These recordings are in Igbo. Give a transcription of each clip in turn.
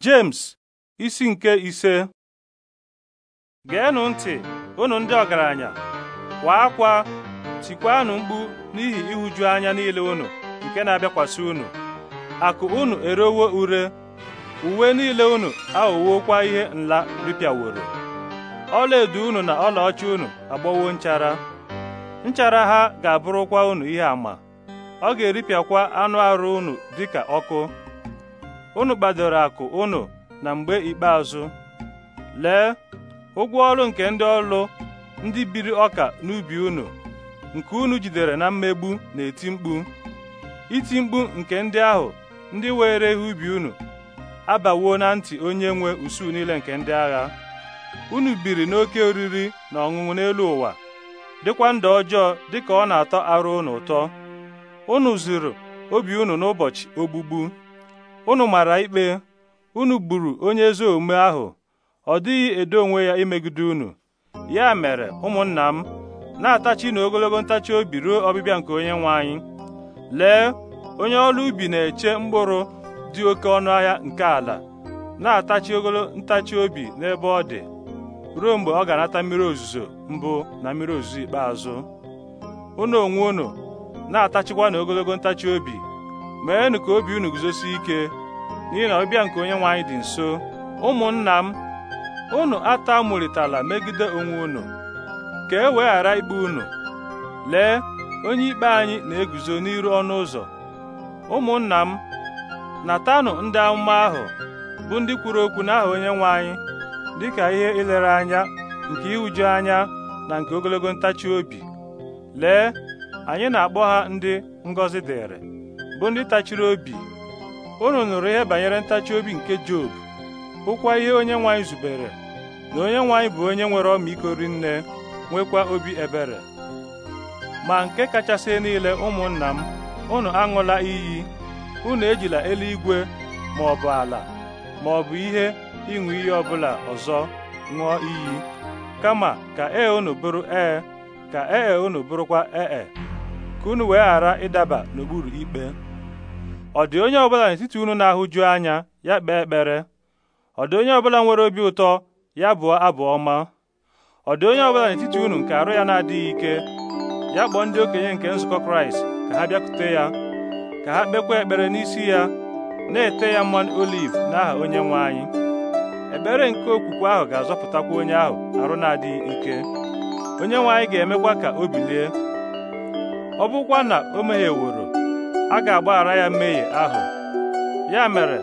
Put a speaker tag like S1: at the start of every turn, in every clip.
S1: James isi nke ise geenụ ntị unu ndị ọgaranya kwa akwa tikwanụ mkpu n'ihi ịhụju anya niile unu nke na-abịakwasị unu akụ unu erewo ure uwe niile unu aghọwokwa ihe nla ripịaworo ọlaedo unu na ọlaọcha unu agbọwo nchara nchara ha ga-abụrụkwa unu ihe ama ọ ga-eripịakwa anụ arụ unu dịka ọkụ unu kpadoro akụ unu na mgbe ikpeazụ lee ụgwọ ọrụ nke ndị ọrụ ndị biri ọka n'ubi unu nke unu jidere na mmegbu na-eti mkpu iti mkpu nke ndị ahụ ndị were ihe ubi unu abawo na ntị onye nwe usuu niile nke ndị agha unu biri n'oke oriri na ọṅụṅụ n'elu ụwa dịkwa ndụ ọjọọ dịka ọ na-atọ arụ unu ụtọ unu zuru obi unu n'ụbọchị ogbugbu unu mara ikpe unu gburu onye ezi omume ahụ ọ dịghị edo onwe ya imegide unu ya mere ụmụnna m na-atachi na ogologo ntachi obi ruo ọbịbịa nke onye nwe anyị lee onye ọrụ ubi na-eche mkpụrụ dị oke ọnụ ahịa nke ala na-atachi ogolo ntachi obi n'ebe ọ dị ruo mgbe ọ ga-anata mmiri ozuzo mbụ na mmiri ozuzo ikpeazụ unu onwe unu na-atachikwa na ogologo ntachi obi meenụ ka obi unu guzosi ike n'ihi na ọbịa nke onye nwe anyị dị nso ụmụnna m unu atamụrịtala megide onwe unu ka e wee ghara ikpe unu lee onye ikpe anyị na-eguzo n'iru ọnụ ụzọ ụmụnna m natanụ ndị amụma ahụ bụ ndị kwuru okwu n'aha onye nwe anyị dịka ihe ilere anya nke iwuju anya na nke ogologo ntachi obi lee anyị na-akpọ ha ndị ngọzi dịrị bụ ndị tachiri obi unu nụrụ ihe banyere ntachi obi nke Job hụkwa ihe onye nwaanyị zubere na onye nwaanyị bụ onye nwere ọmịiko rinne nwekwa obi ebere ma nke kachasị niile ụmụnna m unu aṅụla iyi unu ejila eluigwe ma ọ bụ ala ma ọ bụ ihe ịṅụ iyi ọbụla ọzọ ṅụọ iyi kama ka ee unu bụrụ ee ka ee e unu bụrụkwa ee e, ka unu wee ghara ịdaba n'okpuru ikpe ọ dị onye ọ bụla n'etiti unu na-ahụju anya ya kpee ekpere ọ dị onye ọbụla nwere obi ụtọ ya bụọ abụ ọma ọ dị onye ọbụla n'etiti unu nke arụ ya na-adịghị ike ya kpọọ ndị okenye nke nzukọ kraịst ka ha bịakute ya ka ha kpekwa ekpere n'isi ya na-ete ya mmanụ oliv n'aha onye nwe anyị ekpere nke okwukwe ahụ ga-azọpụtakwa onye ahụ arụ na-adịghị ike onye nwe anyị ga-emekwa ka o bilie ọ bụkwa na o mehieworo a ga-agbaghara ya mmehie ahụ ya mere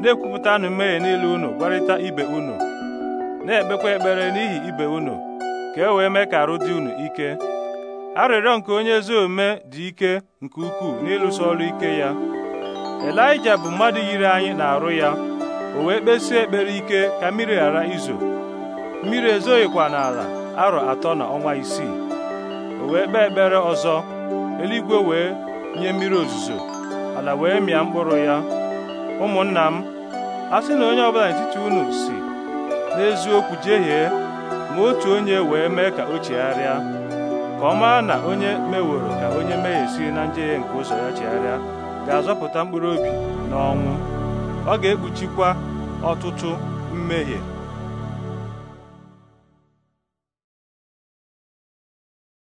S1: na-ekwupụtanụ mmehie niile unu gwarịta ibe unu na-ekpekwa ekpere n'ihi ibe unu ka e wee mee ka arụ dị unu ike arịrịọ nke onye ezi omume dị ike nke ukwuu n'ịlụso ọrụ ike ya Elija bụ mmadụ yiri anyị na-arụ ya o wee kpesie ekpere ike ka mmiri ghara izo mmiri ezoghịkwa n'ala arọ atọ na ọnwa isii o wee kpee ekpere ọzọ eluigwe wee nye mmiri ozuzo ala wee mịa mkpụrụ ya ụmụnna m a sị na onye ọbụla n'etiti unu si n'eziokwu jehie ma otu onye wee mee ka o chegharịa ka ọ maa na onye meworo ka onye mehie si na njehie nke ụzọ ya chegharịa ga-azọpụta mkpụrụ obi n'ọnwụ ọ ga-ekpuchikwa ọtụtụ mmehie